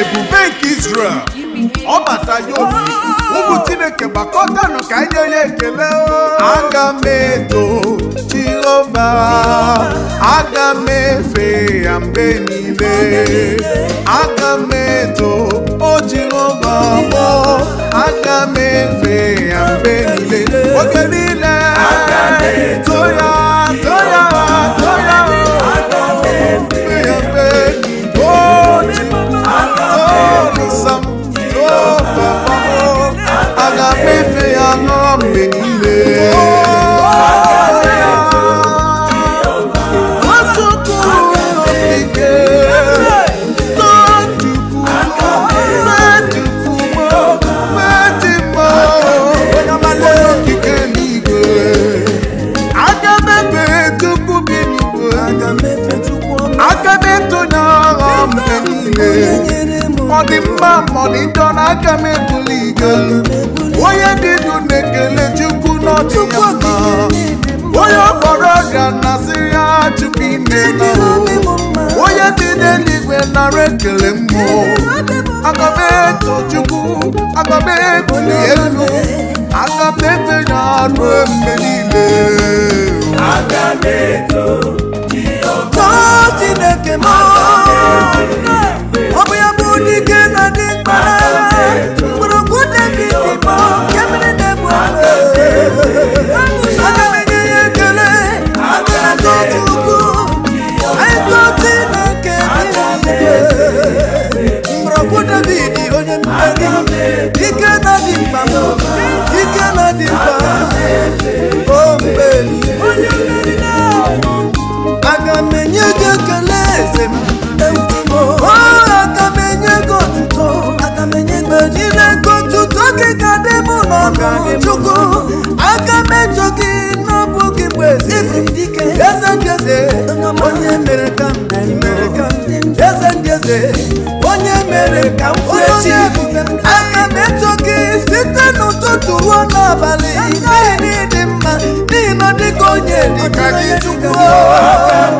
ebube nke Israel ọ bata ya obi ụmụ Chineke gbakọtanụ ka anyị nye ya ekele aga m eto Jehova aga m efe ya mgbe niile aga m eto o Jehova mụ aga m efe ya mgbe niile oge niile eto ya ọdịdọ n'aka mebuli igelu onye dị ndụ na-ekele chukwu n'ọdịya mma onye ọkpọrọ ga na-asị ya chukwu ime na onye dị n'eluigwe nara ekele mmụọ agabeto chukwu agabebuli elu agabebe ya ruo mgbe niile agabeto Chineke ma chukwu aka metụ gị n'ọbụ gị bụ eze ndị eze onye mere ka ndị eze eze onye mere ka m aka metụ gị site n'ụtụtụ ruo n'abalị ihe dị mma n'ihi na dịka onye dịka gị chukwu ọrụ m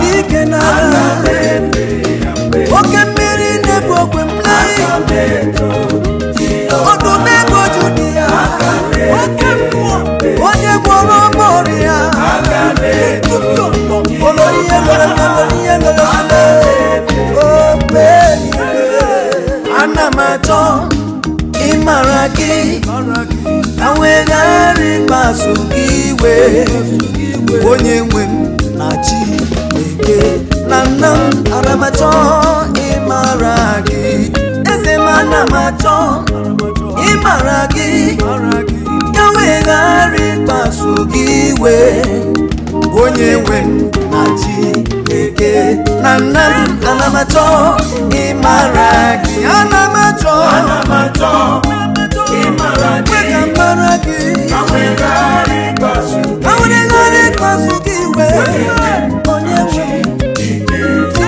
dị ike n'ala onye gwọrọ ọma ọrịa olo ihe mere mmadụ ihe mere ana m achọ ịmara gị iwe onye na na m m ịmara gị m ana m achọ ịmara gị ghara ịkpasu gị iwe onye nwe m na Chineke na nna m ana m achọ ịmara gị ana m achọ ịmara gị ka m mara gị awere ghara ịkpasu gị iwe onye nwe m Chineke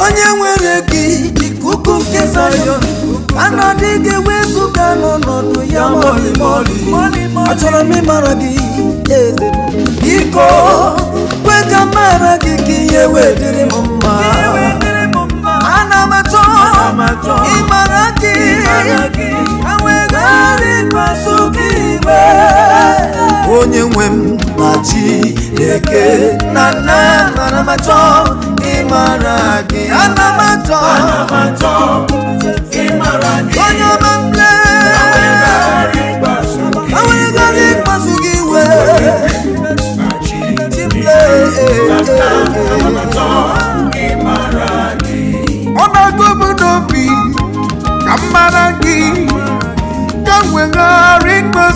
onye nwere gị ikuku nke Zayọn anọdụ gị wezụga n'ọnọdụ ya achọrọ m ịmara gị biko kwe ka mara gị ka ihe wee dịrị m mma ana m achọ ịmara gị ari pasukiwe onye nwe m na chi eke na nna mara ma chọọ ịmara gị ana ma chọọ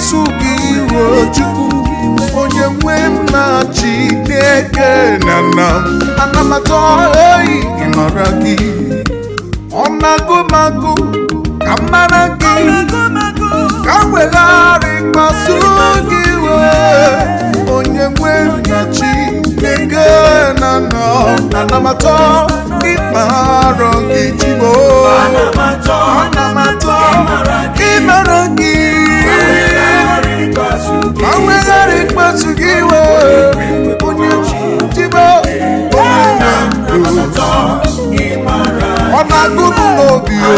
na gị iwe Chukwu onye nwe m na eke na na anamata oyi ịmara gị ọ ka mara gị ka wegharị kpasu gị iwe onye nwe m na-achị na na anamata ịkpa gị jibo ịmara gị oníjìbó onínàdó ọ̀nà gbúdú lòbí o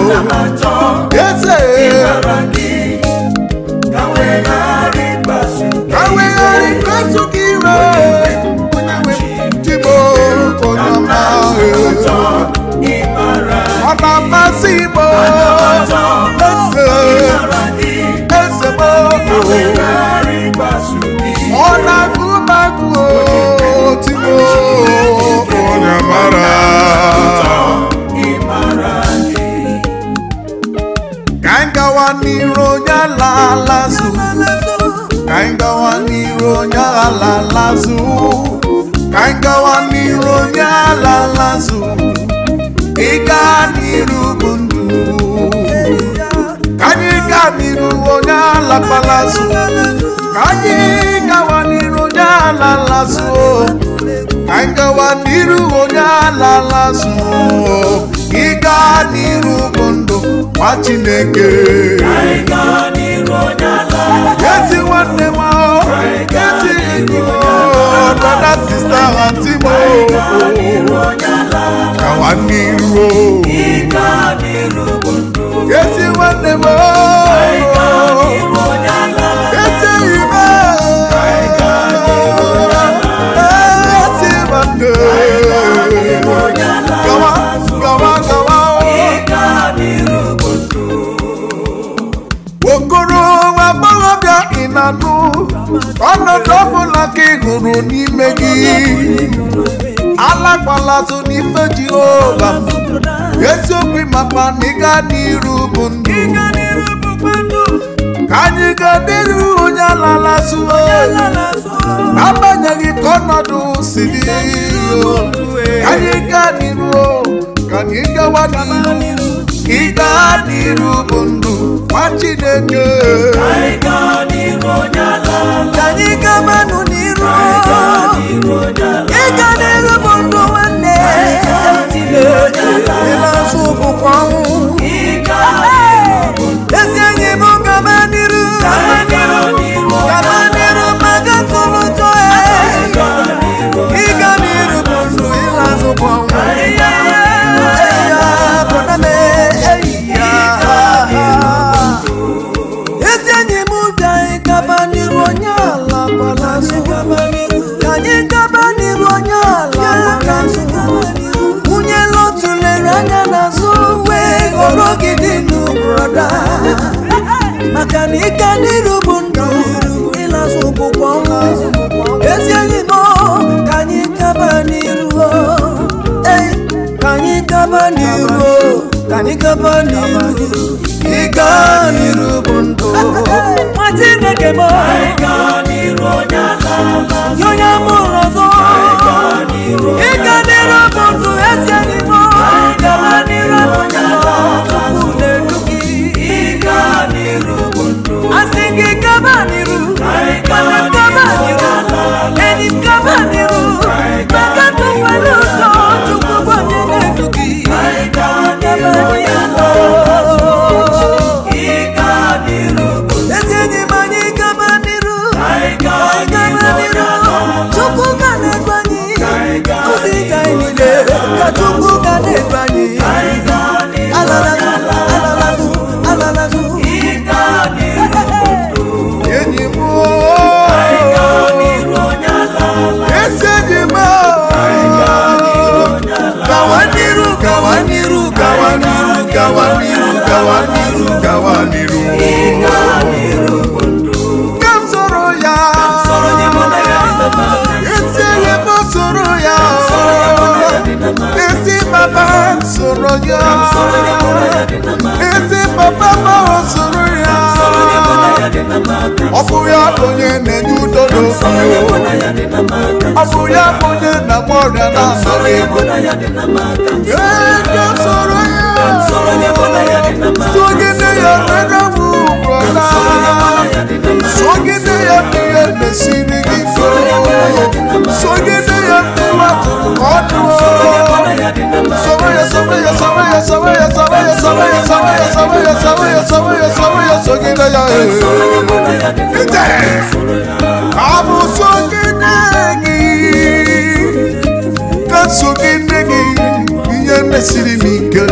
yéṣe. Káwé yọrí gbàsù kí rẹ̀ oníjìbó onínàdó ọ̀nà màsíbó ẹsẹ̀ ẹsẹ̀ bó. Káwé yọrí gbàsù lalazu kainga wani ronya lalazu kainga wani ronya lalazu ika niru bundu kanyika niru ronya lapalazu kanyika ala lasụ ka anyị gawa n'iru onye ala lasụ ịga n'iru bụ ndụ nwa Chineke Yesi nwanne m ezi enyi m dada sista anti m gawa n'iru ezi nwanne m nụrụ n'ime gị alakwalazụ n'ife jehova eziokwu maka n'ịga ịga n'iru bụ ndụ ka anyị ga n'iru onye alalasụ agbanyeghị ka ọnọdụ siri ka anyị ga n'iru ka anyị gawa n'iru ịga n'iru bụ ndụ nwa chineke ka anyị gabanụ n'iru ị ga ka na ike n'iru bụ ndụ ịlasụ ụkwụkwọ ezi enyi ka anyị gaba n'iru ka anyị gaba n'iru ka anyị gaba n'iru ịga n'iru bụ ndụ nwa Chineke m onye amụrụ ọzọ Lord. bona yake na makamsoro sogide yonega vugola sogide yonige mesiri gifo sogide yonima kotuo sobeya sobeya sobeya sobeya sobeya sobeya sobeya sobeya sobeya sobeya sobeya sogide yae ite abu siri m ike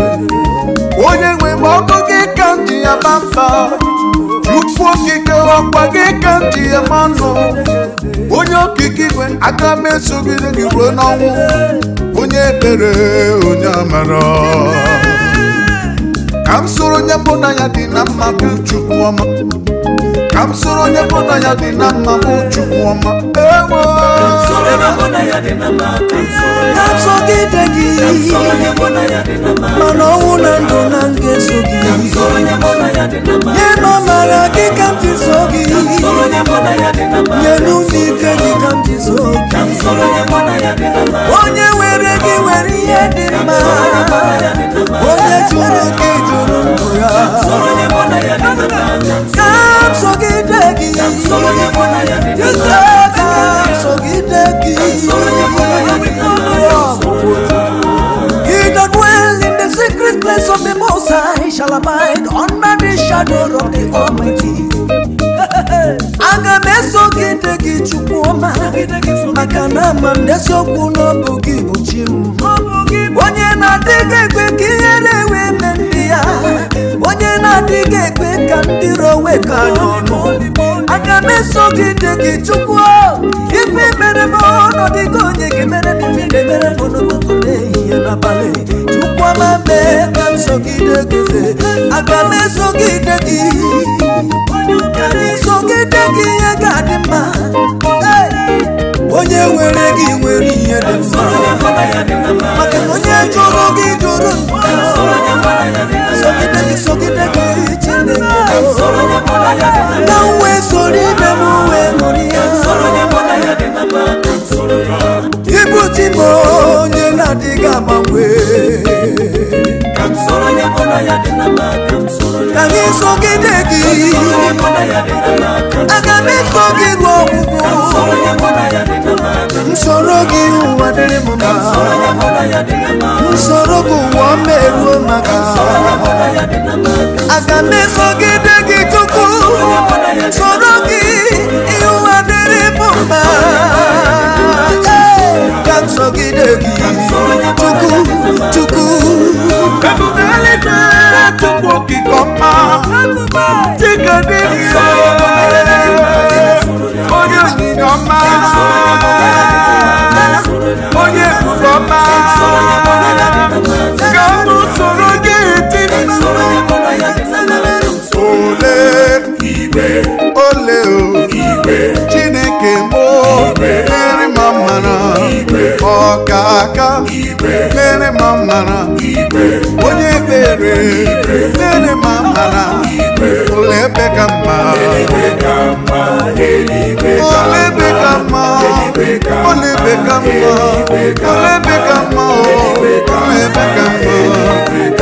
onye nwe m ọkụ gị ka m ji ya ma mba chukwu okike ọkwa gị ka m ya ma nụ onye okike igwe aka m esogide gị ruo n'ọnwụ onye ebere onye amara ka m soro onye mbụ na ya dị na mma bụ chukwu ọma na msoro onye mpụta ya dị na mma bụ chukwuọma ewo napsọgide gị mana ọnwụ na ndụ na ngeso gị nye ma mara gị ka m ji so gị nye n'ume ike gị ka m ji so gị onye were gị were ihe dị mma onye jụrụ gị jụrụ ndụ ya ka m so gị sogidegi jisaka sogidegi he that dwell in the secret place of the Most High shall abide under the shadow of the Almighty. aga m eso gị nne gị chukwu ma maka na ama m n'eziokwu n'ọbụ gị bụ chi m onye na-adịghị ekwe ka ihe na-enwe eme ndị ya onye na-adịghị ekwe ka ndị rowe ka n'ọnụ aga m eso gị nne gị chukwu ife mere m ọnọdụ gị onye gị mere mere m n'ụtụtụ n'ehihie n'abalị chukwu ọma mee ka nsogide gị aga m eso gị nne gị ogede gị ihe ga-adị mma onye nwere gị nwere ihe dị mma maka na onye jụrụ gị jụrụ sogide gị sogide gị chinena nwe soro ibe m nwe ṅụrụ ya ibu tibo onye na-adịghị agbanwe yangi soki ndeki akambi soki lwokuku nsoloki uwadele moma nsoloku wambelu maka akambi soki ndeki tuku nsoloki iwadele moma kamsogidegi chukwu chukwu ebubele na chukwu okike ọma chike dị ire onye onyinye ọma onye ebube ọma ka m soro ole ole aka mere ma mara nara onye ekpere mere ma mara nara ụlọ ebe ka mma ụlọ ebe ka mma ụlọ ebe ka mma ụlọ ebe ka mma ụlọ ebe ka mma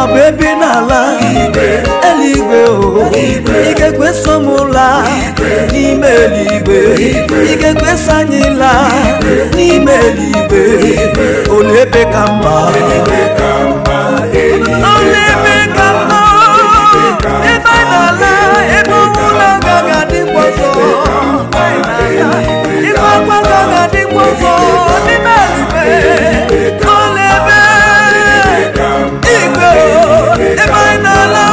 ọ bụ ebe n'ala eluigwe o ike so m laa n'ime eluigwe ike so anyị laa n'ime eluigwe onye ebe ka mma emana la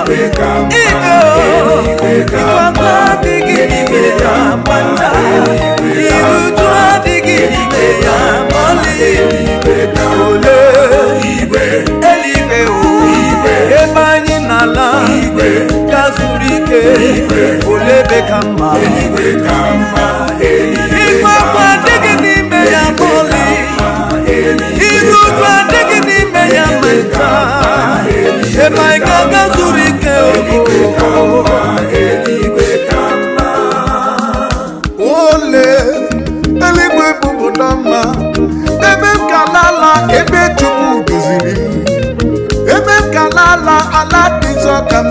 o igo iwata digidi gidi amanda. ịmaike aka zuru ike ole eluigwe bụpụta mma ebe m ka ebe chukwu duziri ebe m ala dị nsọ ka m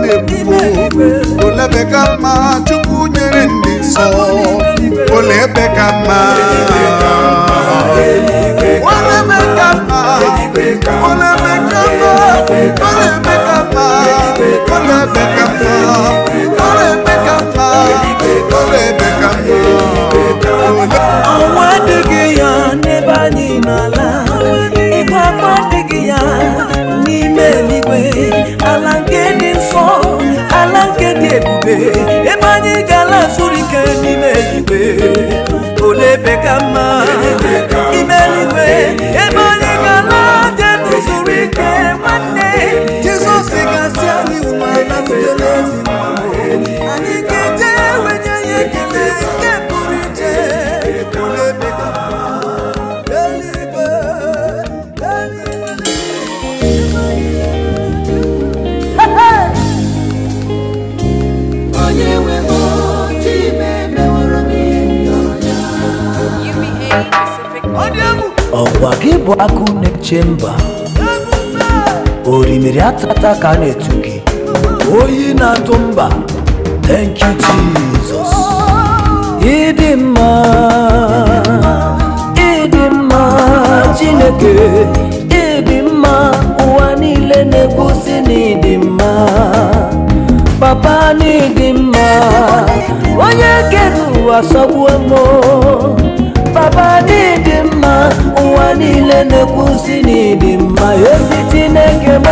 na-ebubo ebe ka mma chukwu nyere ndị nsọ olebe ebe ka ọnwa adịghị ya n'ebe anyị n'ala ịgba akwa adịghị ya n'ime eluigwe ala nke dị nsọ ala nke dị ebube ebe anyị ga-ala zuru ike n'ime eluigwe ole ebe ka mma ime eluigwe ebe ike nwanne gasị anyị anyị eje nke pụrụ iche gị bụ akụ na-eche mba mmiri atata ka a na-etu gị oyi na-atụ mba thank you Jesus ịdị mma ịdị mma Chineke ịdị mma ụwa niile na-egosi na mma papa na mma onye kere ụwa sọgbuo m papa n'ịdị mma ụwa niile na-ekwusi n'ịdị mma ezi Chineke m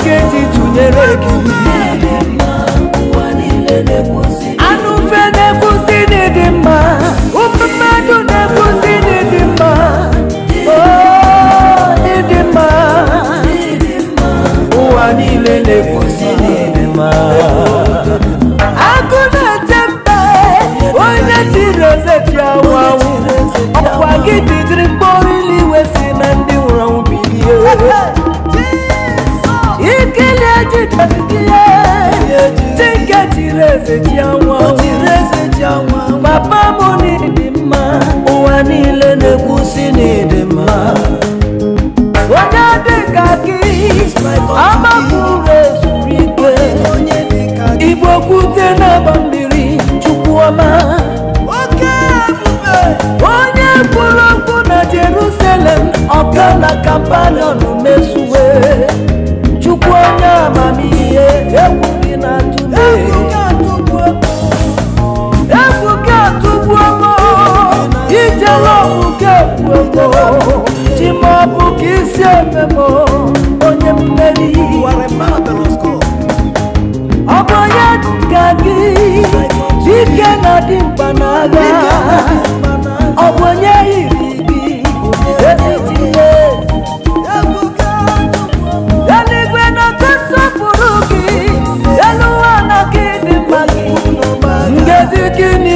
nke ji tụnyere gị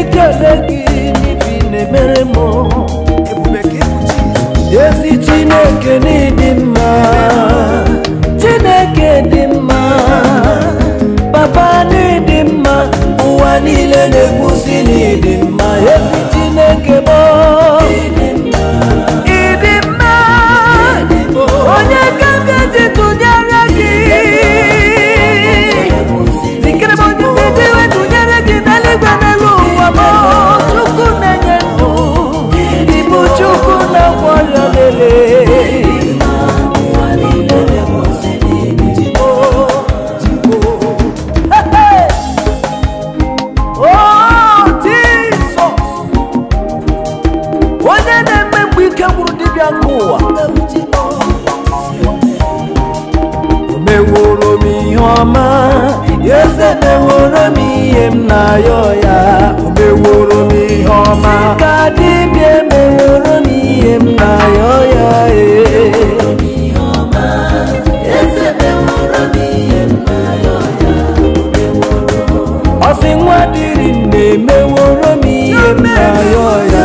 ikele gị n'ibi na-emere m ezi chineke n'ịdị mma chineke dị mma papa n'ịdị mma ụwa niile na-egwusi n'ịdị mma ezi chineke meworo m ihe m na-ayọ ya o meworo m ihe ọma ka dibịa emeworo m ihe m na-ayọ ya ọsị eh. nwa dịrị na-emeworo m ihe m na-ayọ ya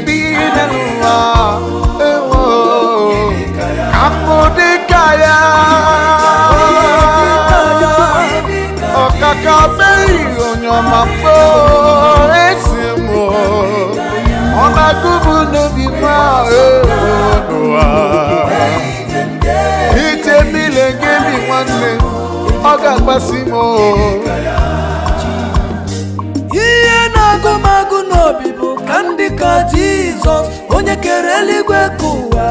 بينا الله كمودي كايا ọ̀kàkà bẹ́ẹ̀ ìròyìn màpọ̀ ẹ̀sìn mọ̀ ọba gúgbù níbi máa ẹ̀rọ wa. ìtẹ̀mí lè gé mi wọ́n ní ndị ka jizọs onye kere eluigwe ka ụwa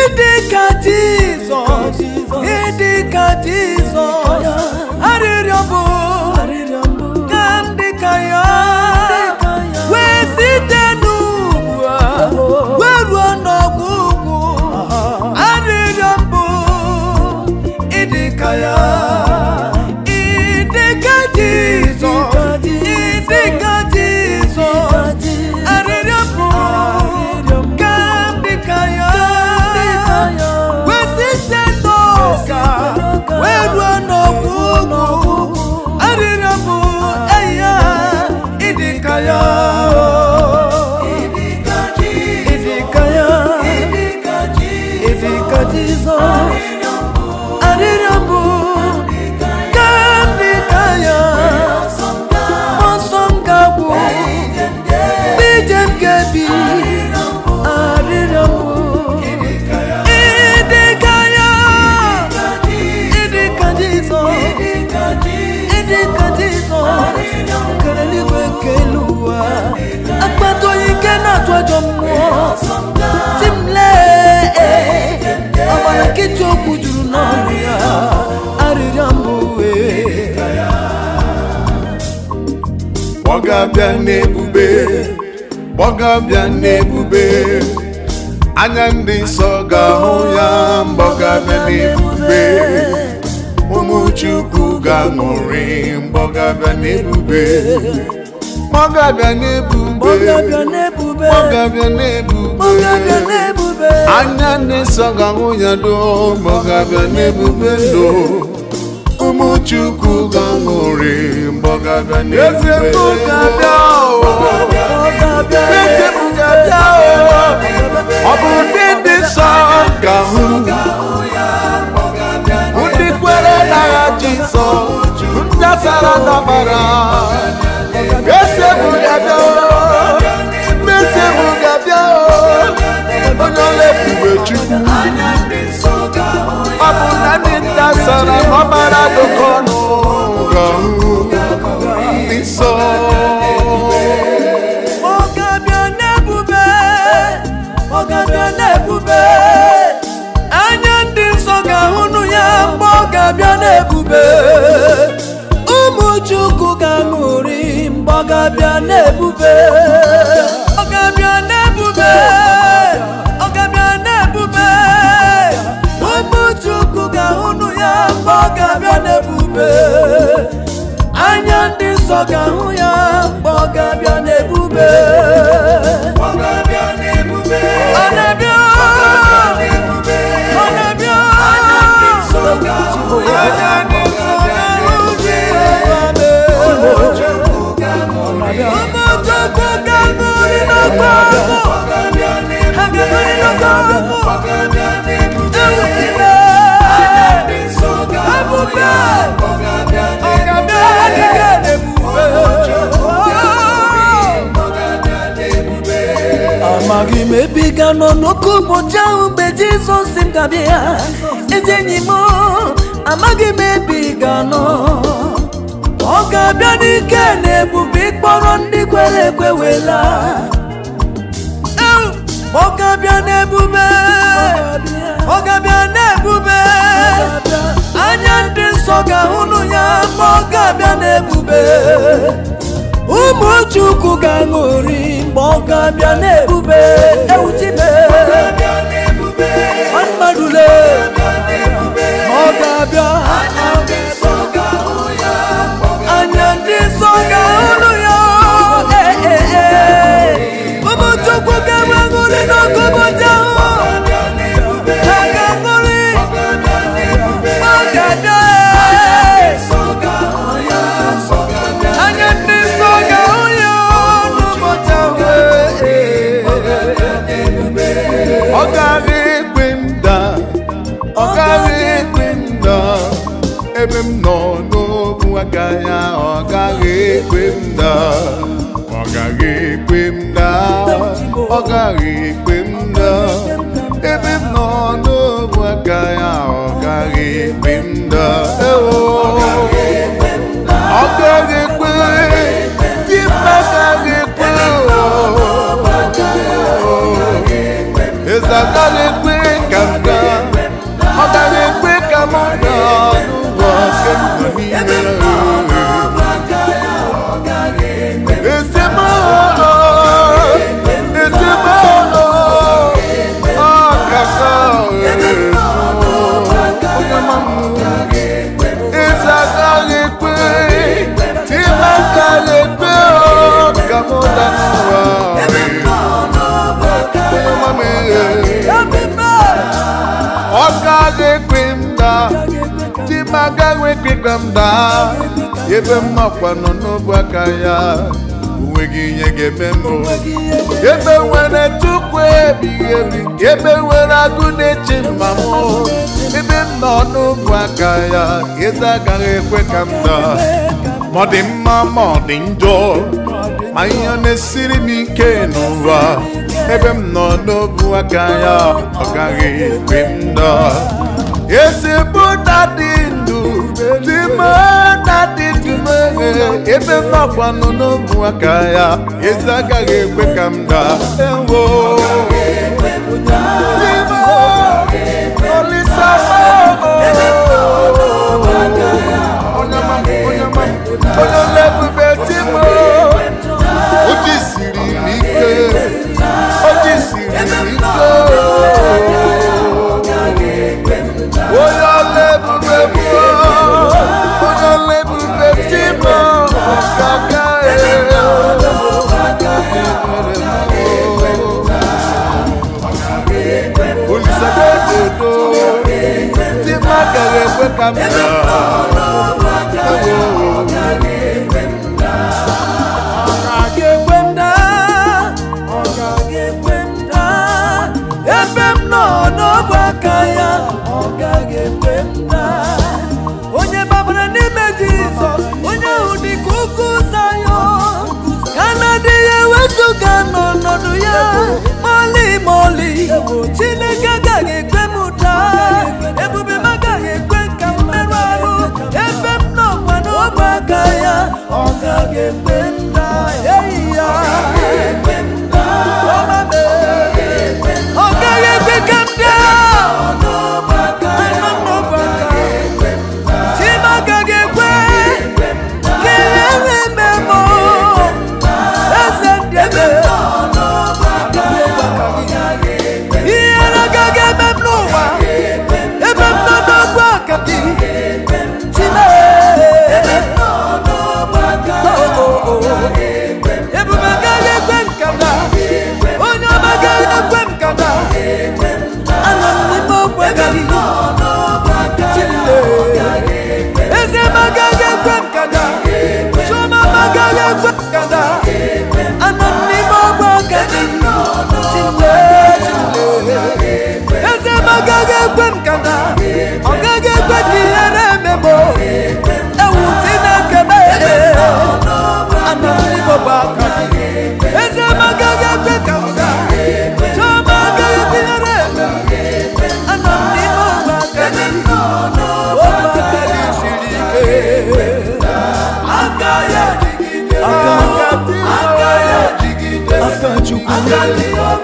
ịdị ka jizọs ịdị ka jizọs arịrịọ bụ ka ndị ka ya wee site n'ugwu wee ruo n'ọgwụgwụ arịrịọ mbụ ịdị ka ya ọsọ mmụọ ti m lee ọgbara nkịta okwu juru n'ọnụ ya arịrịọ mbụ m uwe bịa n'ebube bịa n'ebube anya ndị nsọ ga-ahụ ya bịa n'ebube ụmụ Chukwu ga-aṅụrị bịa n'ebube bịa n'ebube mọgabịa n'ebube anya na ga-ahụ ya doo mọgabịa n'ebube ndo ụmụ Chukwu ga-aṅụrị mọgabịa n'ebube ọ bụ ndị dị nsọ ga ndị kwere nsọ ndị dabara ebube chukwu ọ bụ na ndị nta sara ọbara dụkọ ọnụ ga-ahụ ndị nsọ ọgabịa na-ebube anya ndị nsọ ga-ahụnụ ya mgbe ọ ga-abịa ga-ahụ ya mgbe ọ ga-abịa n'ebube Ọ̀gá mi ò ní. amaghị m ebe ga nọ n'oke ụbọchị ahụ mgbe Jizọs si m ya ezi enyi m amaghị m ebe ị ga ọ ga-abịa n'ike na ebube ịkpọrọ ndị kwere ekwe wela ọ ga-abịa n'ebube ọ ga-abịa n'ebube anya ndị nsọ ga-ahụnụ ya ma ọ ga-abịa n'ebube ụmụ chukwu ga-aṅụri mgbe ọ ga-abịa na-ebube ewu tibe ọmadule ọ ga-abịa anya ndị nsọ ga-ahụrụ ya ụmụ chukwu ga-aṅụri n'ọkụbọdị ahụ ọ gaghị ekpe m na ebe m nọ n'ogbu agaghị ahụ na mba ebe mmakwa nọ n'obu aka ya onweghị ihe ga-eme mbụ ebe nwere tupu ebighị ebi ebe nwere agụ na-eche mma m ebe m nọ n'obu aka ya eze agaghị ekwe ka m daa ma ọ dị mma ma ọ dị njọ ma ihe na-esiri m ike n'ụwa ebe m nọ n'obu aka ya ọ gaghị ekwe m daa dịme na dị dịme ebe mmakwanụ n'ụmụaka ya ezi agaghị ekwe ka ewo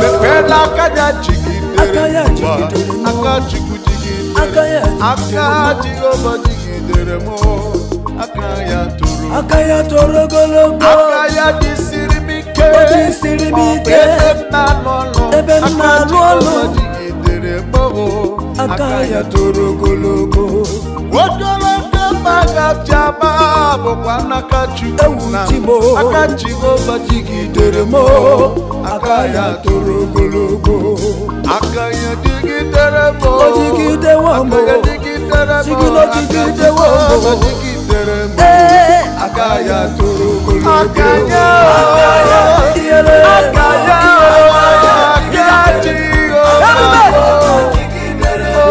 mepela aka ya jigidere aka chukwu jigidere aka jehova jigidere m aka ya toro aka ya toro ogologo aka ya jisiri m ike jisiri m ike ebe m na ebe m na aka ya toro ogologo ogologo baga jaba bokwa na kachu na timo akachi go bajigi deremo akaya torogologo akaya digi deremo bajigi dewa mo digi deremo digi lo digi dewa mo bajigi deremo akaya eh. torogologo akaya akaya diere akaya akaya digi deremo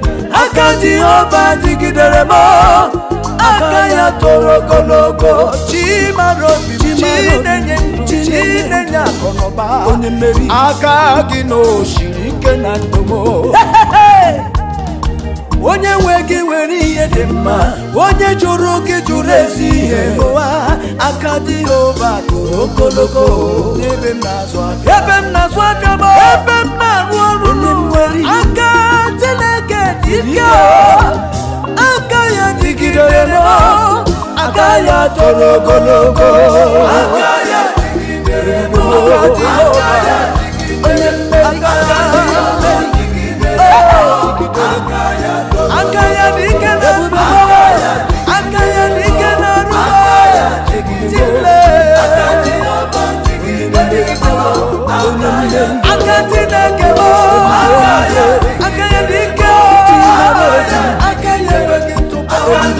aka jehova dịgidere m aka ya toro ogologo chimara obi chinenye chinenye akụnụba onye mmeri aka gị na ike na ndomo onye nwe gị nwere ihe dị mma onye jụrụ gị jụrụ ezi ihe ụwa aka dị ova tụrụ ogologo ebe m na-azụ afịa ebe m na-azụ afịa bụ ebe m na-arụ ọrụ nwere aka Chineke dị ike aka ya dịgidere aka ya tọrọ ogologo aka ya dịgidere aka ya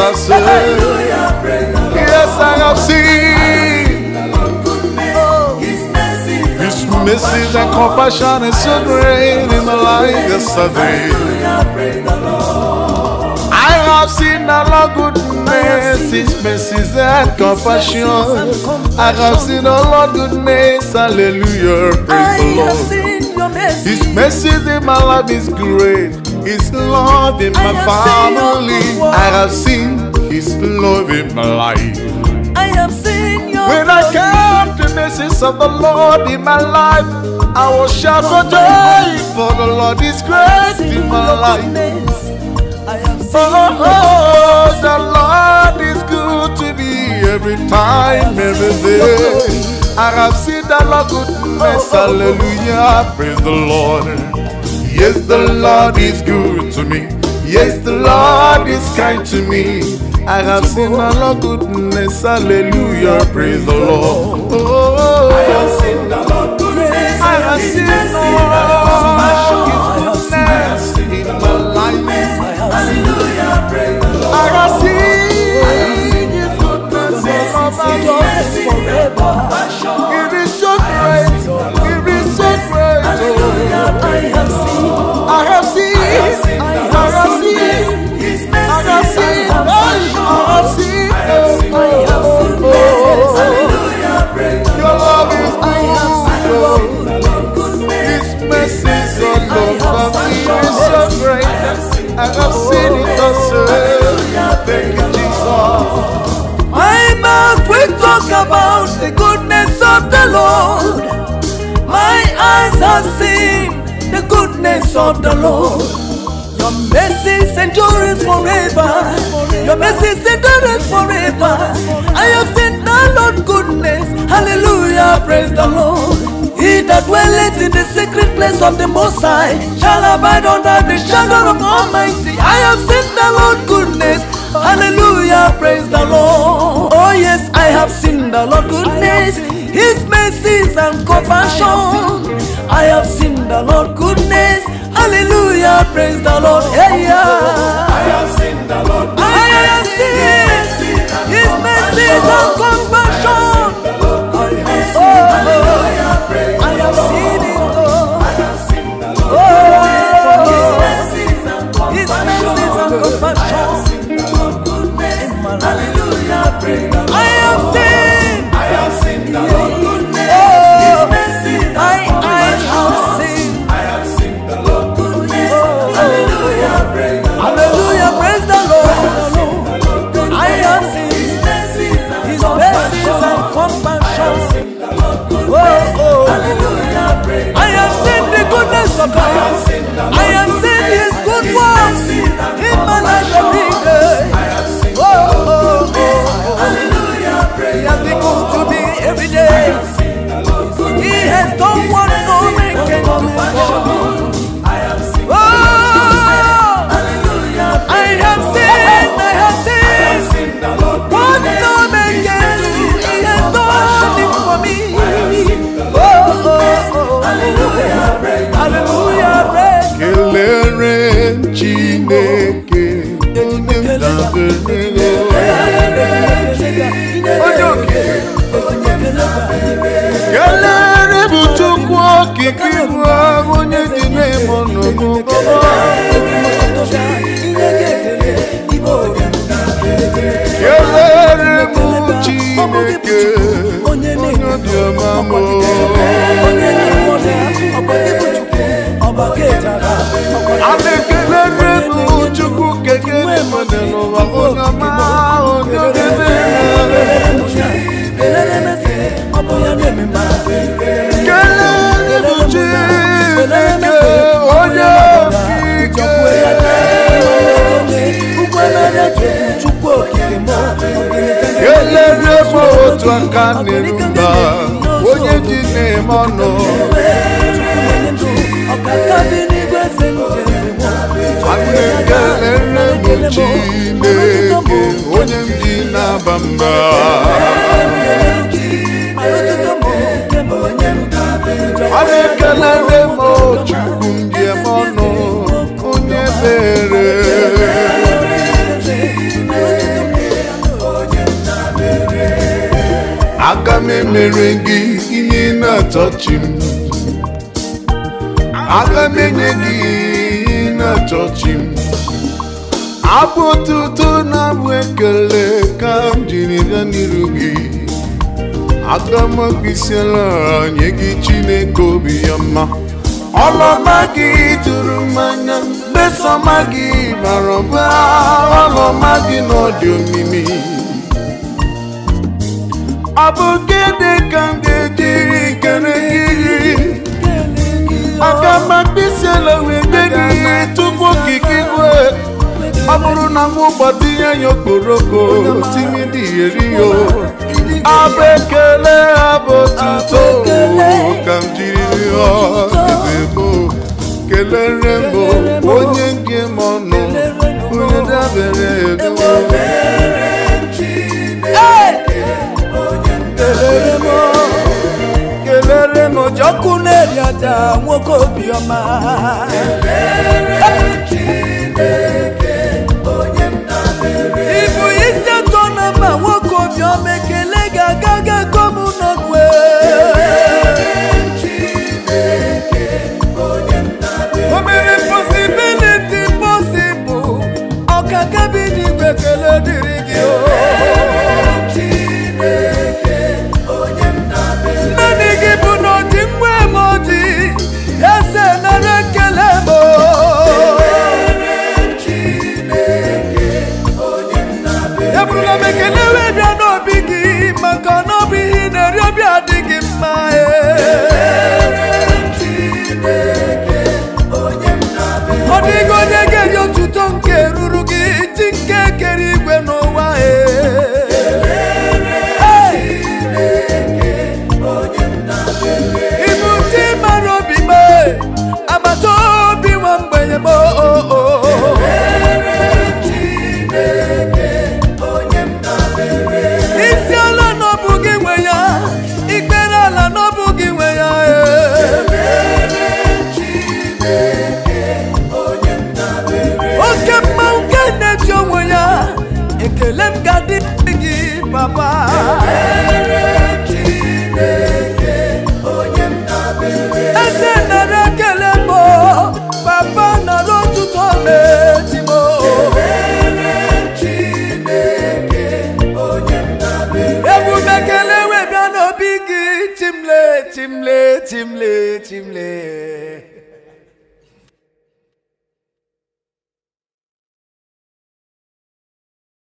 I say, Yes, I have seen oh, His mercies and compassion is so great in my life yesterday. I have seen the Lord goodness, His mercies and compassion. I have seen the Lord goodness, hallelujah, praise the Lord. His mercies in my life is great. His love in my family. I have seen His love in my life. I have seen your When I came to the message of the Lord in my life, I will shout for joy, for the Lord is great in my life. Oh, oh, the Lord is good to me every time, every day. I have seen the Lord goodness, oh, oh, oh. hallelujah, praise the Lord. Yes, the Lord is good to me. Yes, the Lord is kind to me. I have seen a lot goodness. Hallelujah. Praise the Lord. Oh, I have seen a lot goodness. I have seen a lot goodness in my life. Hallelujah. Praise the Lord. I have seen I have seen goodness of my i talk about the goodness of the Lord. My eyes have seen the goodness of the Lord. Your mercies endure forever. Your mercies endure forever. I have seen the Lord goodness. Hallelujah, praise the Lord that dwelleth in the secret place of the Most High shall abide under the shadow of Almighty. I have seen the Lord goodness. Hallelujah, praise the Lord. Oh yes, I have seen the Lord goodness, His mercies and compassion. I have seen the Lord goodness. Hallelujah, praise the Lord. Hey, yeah. I have seen the Lord. I have seen His mercies and compassion. I am sending good words. chukwu okike m otu aka n'eluba onye ji na-eme ọnụ anyị kelere m Chineke onye ndị na-aba mba anyị ekelere chukwu ndị eme ọnụ onye mere aga m emere gị ihe na-achọchi m aga m enye gị ihe na-achọchi abụ otuto na abụ ekele ka m jiri bịa n'iru gị aga m akpịsịala nye gị chineke obi ya mma ọlọma gị tụrụ m anya mgbesọma gị bara ọba ọlọma gị n'ọdị omimi ọ dị ka m ga-ejiri kele gị agama mkpịsị wee nye gị ihe tupu okike igwe ọ bụrụ na m ụgbọtinye ya okporoko tinye dị eri ya abụ ekele abụ tuto ka m jiri rịọ ezebo kelere m onye nke m ọnụ onye dabere eduwo kelere m kelere m eri aja nwoke obiọma Ibu isi atọ na mba nwoke obiọma ekele ga-aga ga kom n'ọgwe o mere posibiliti posibụl ọka kabin igwe kele dịrị gị